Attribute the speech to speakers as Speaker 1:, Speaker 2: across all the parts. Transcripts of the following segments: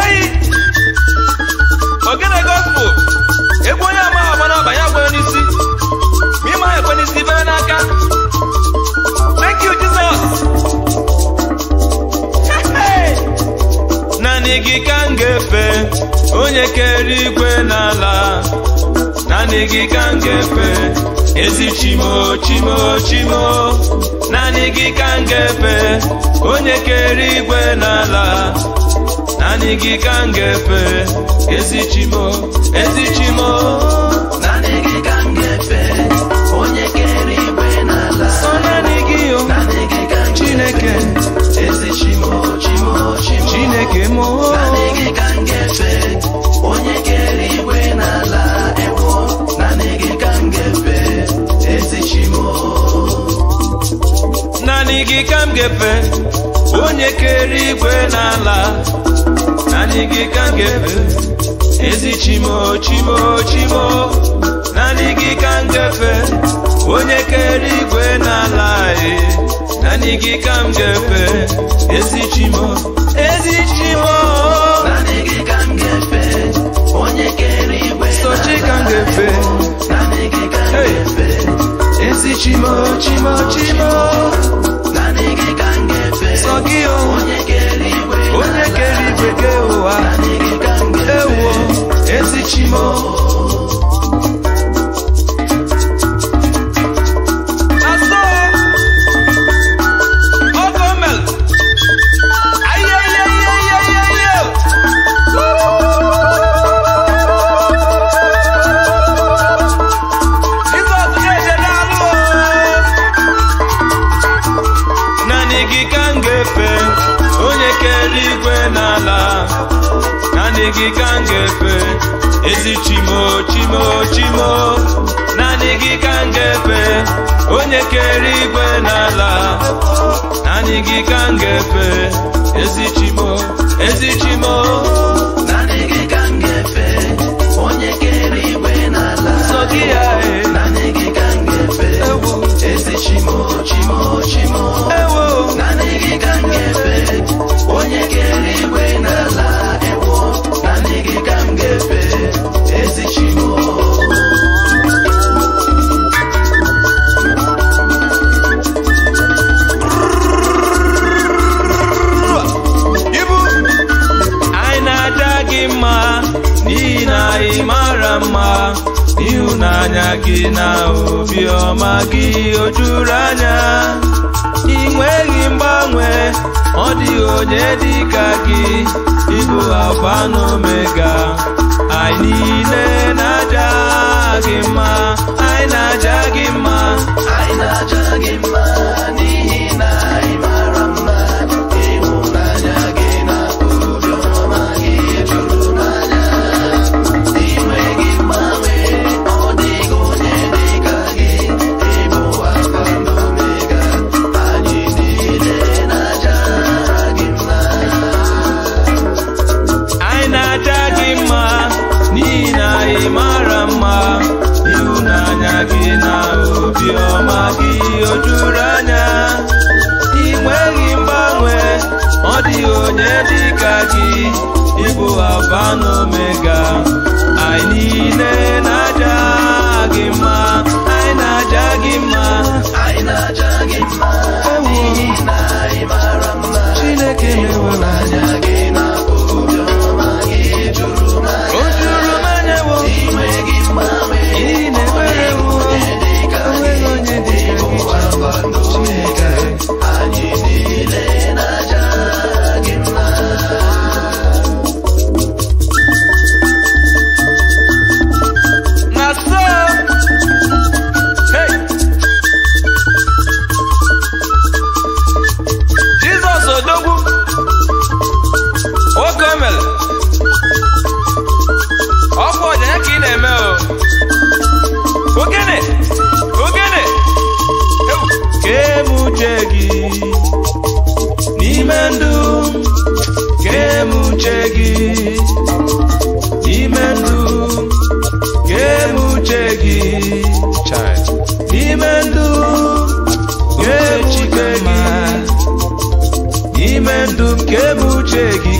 Speaker 1: eyi ogene gospel egwu onye ama agba n'aba ya gwere n'isi ma ịma ha ekwe n'isi bere n'aka thank you jesus naanị gị ka m ga onye kere ikwe n'ala naanị gị ka m ga ezi chimo chimo chimo naanị gị ka m ga-efe onye kere igwe n'ala naanị gị ka m ga-efe ezi chimo ezi chimo ngefe onye keri igwe n'ala naanị gị ka ngefe ezi chimo chimo chimo naanị gị ka onye keri igwe n'ala e naanị gị ka ngefe ezi chimo ezi chimo naanị gị ka gị ka ezi chimo chimo chimo naanị gị ka onye kere igwe n'ala naanị gị ka ezi chimo ezi chimo naanị gị ka onye kere igwe n'ala sọgị ya naanị gị ka m ezi chimo chimo chimo naanị gị ka onye kere igwe n'ala na m ga-efe na Chimo mara mma ịhụnanya gị na obiọma gị o juru anya ị nweghị mgbanwe ọ dịghị onye dị ka gị ịbụ alfa n'omega, anyị niile na-aja gị mma anyị na-aja gị mma anyị na-aja gị mma Pano Mega. Kedu kebuchegi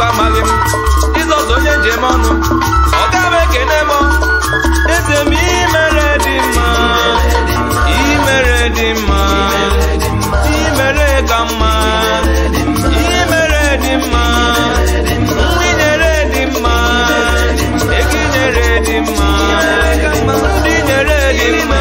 Speaker 1: Chukwu amalị m Jizọs njem ọnụ ọ gaghị ekene m eze m imere dị mma imere dị mma imere ka mma imere dị mma dị mma eginyere dị mma ndị nyere dị mma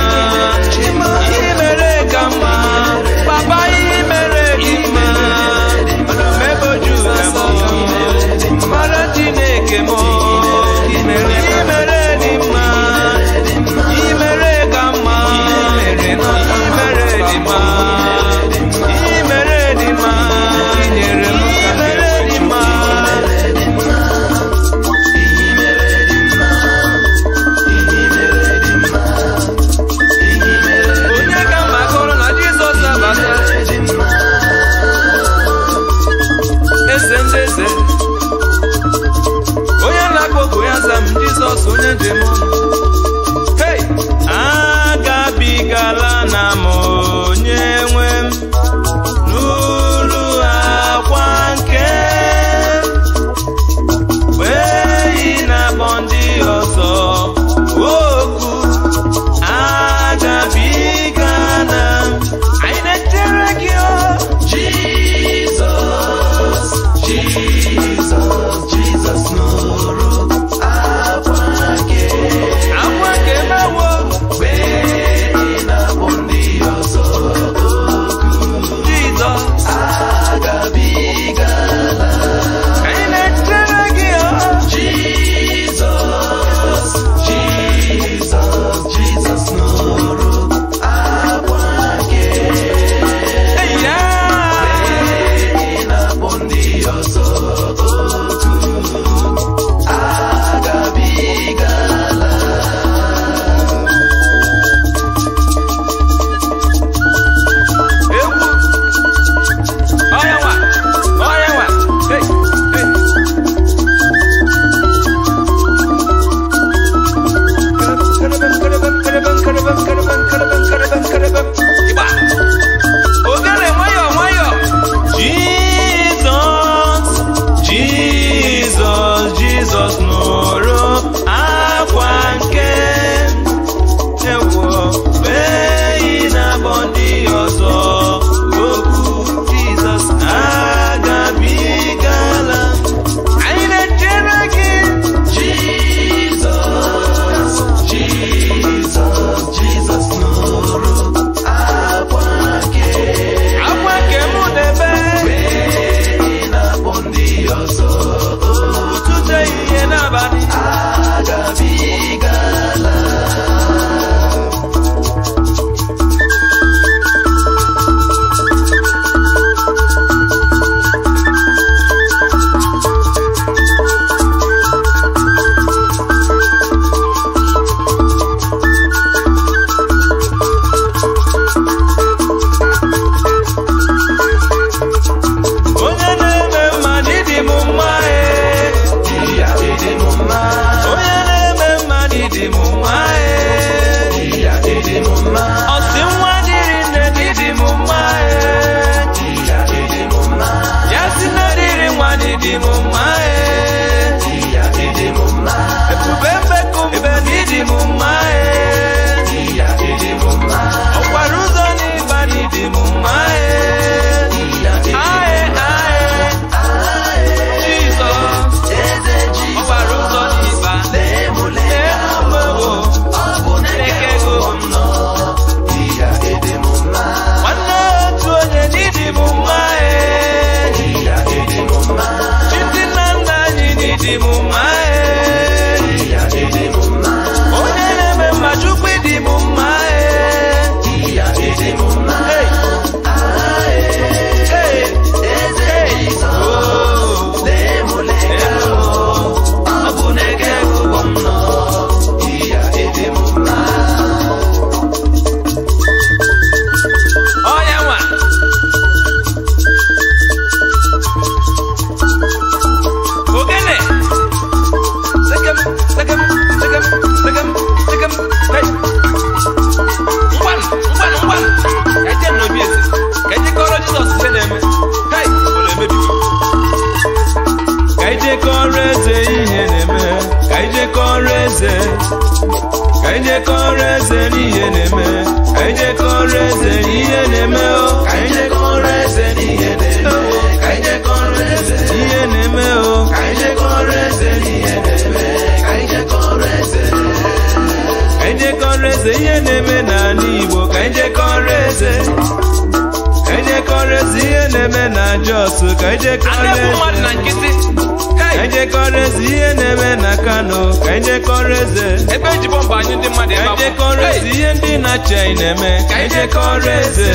Speaker 1: mmadụ na nkịtị eze ihe na-eme na Kano ka ejekọrọ eze ebe eji mba anyị ndị mmadụ ebe ejekọrọ eze ihe ndị na-achị anyị na-eme ka ejekọrọ eze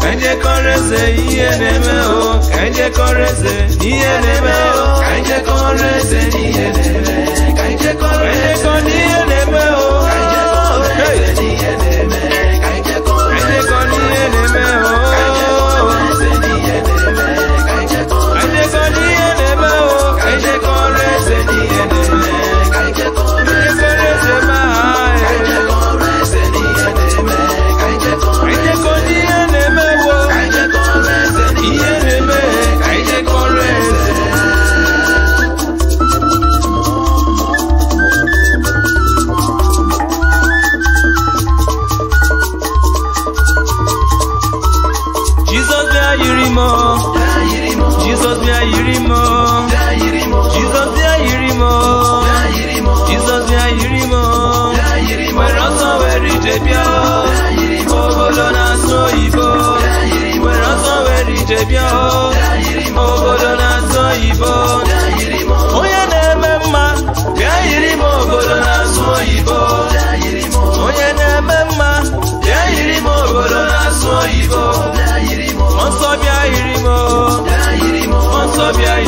Speaker 1: ka ejekọrọ eze ihe na-eme o ka ejekọrọ eze ihe na-eme o ka ejekọrọ eze ihe na-eme ka ejekọrọ ihe na-eme o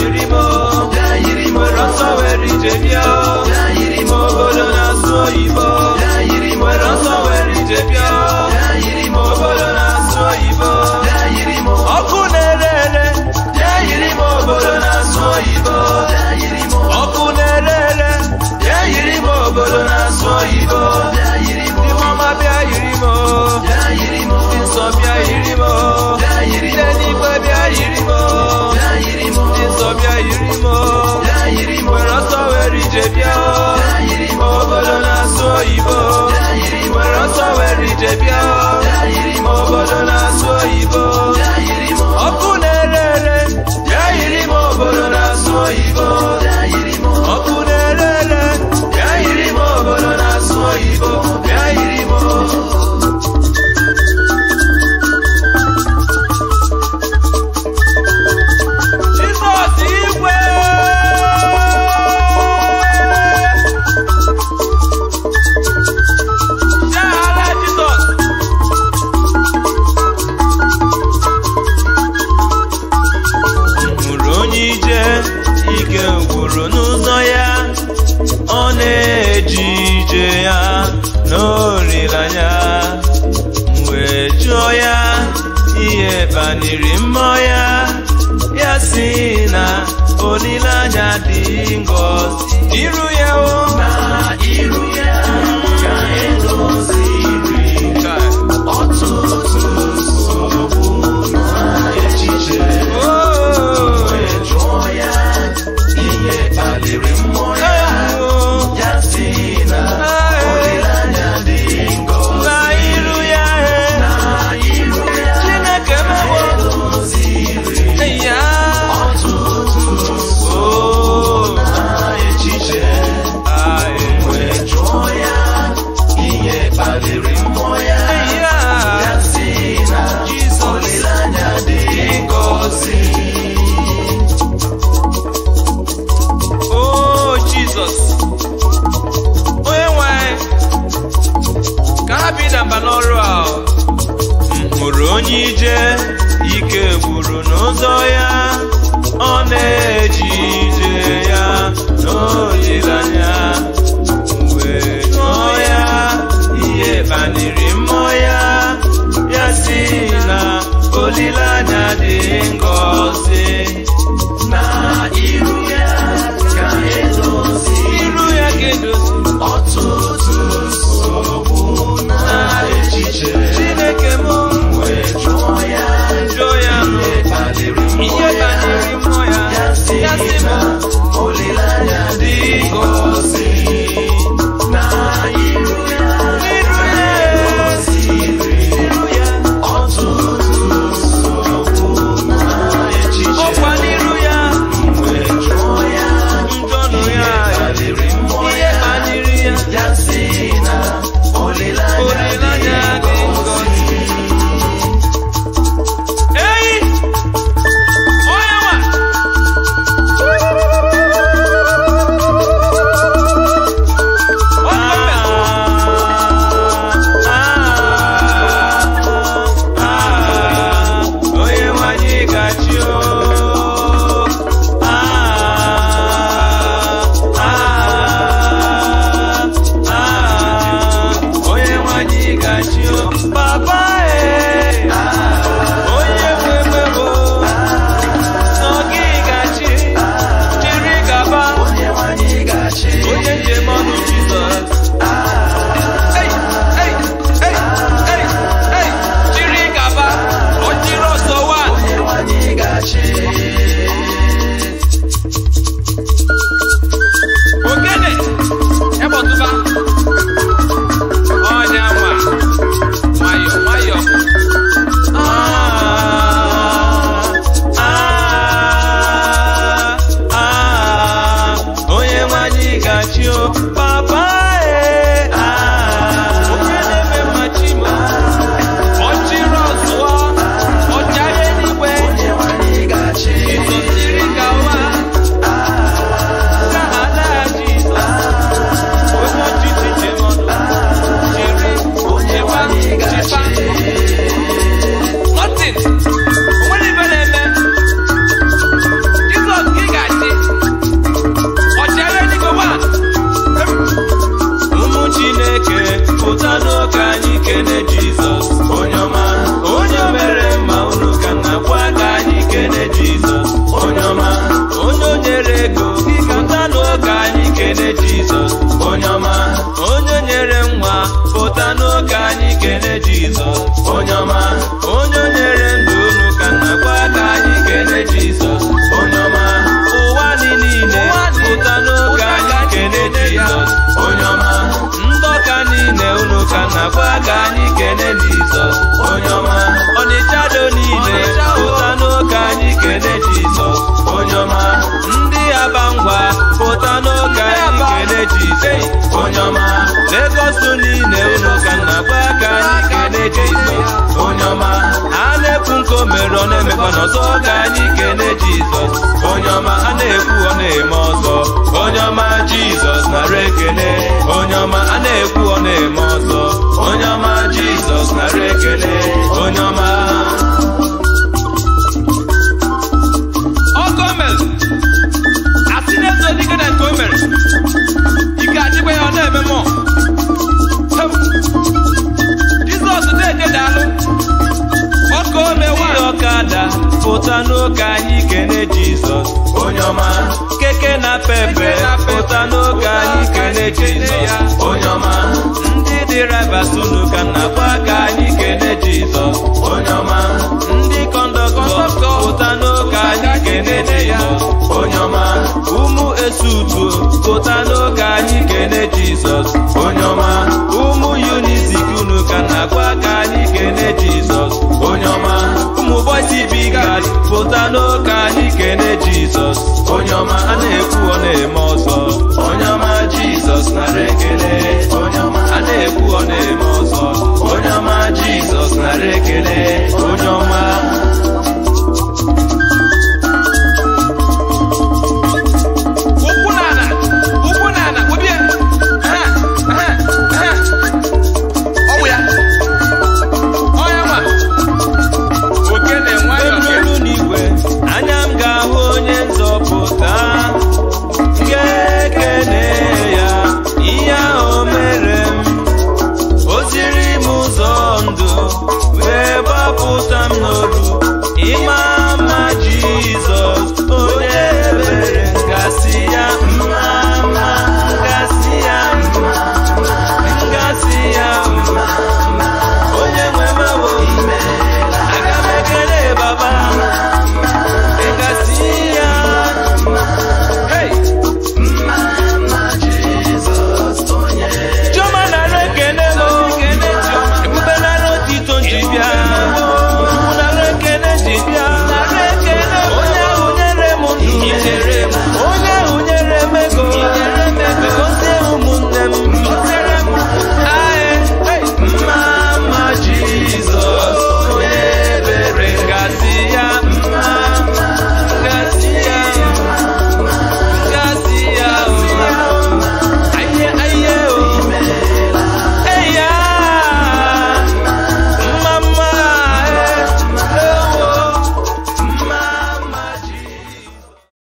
Speaker 1: dayirimo dayirimo lọsọwẹri jẹbi ọ dayirimo obodo na sọ oyibo. Savior. Olileanya dị ngọzi iru ya n'ọrụ a mkpụrụ onye ije ike gburu n'ụzọ ya ọ na-eji ije ya n'olileanya wee ṅụọ ya ihe banyere mmụọ ya ya si na olileanya dị ngọzi na iru ya ka edozi iru ya ka edozi ọtụtụ chineke mụ Lagos niile unu ka nna gba aka anyị ka na-eje onye ọma a na-ekwu nke o mere ọ na-emekwa n'ọzọ ka anyị kene Jizọs onye ọma a na-ekwu ọ na-eme ọzọ onye ọma Jizọs nara ekele onye ọma a na-ekwu ọ na-eme ọzọ onye ọma Jizọs nara ekele onye ọma pụta n'oge anyị kene jizọs onye ọma keke na pepe pụta n'oge anyị kene jizọs onye ọma ndị dị rabatu n'ụka na aka anyị kene jizọs onye ọma ndị kọndọktọ pụta n'oge anyị kene jizọs onye ọma ụmụ esutuo pụta n'oge anyị kene jizọs onye ọma bịalụ ka anyị kene jizọs onye ọma a na-ekwu ọ na-eme ọzọ onye ọma jizọs nara ekele onye ọma a na-ekwu ọ na-eme ọzọ onye ọma jizọs nara ekele onye ọma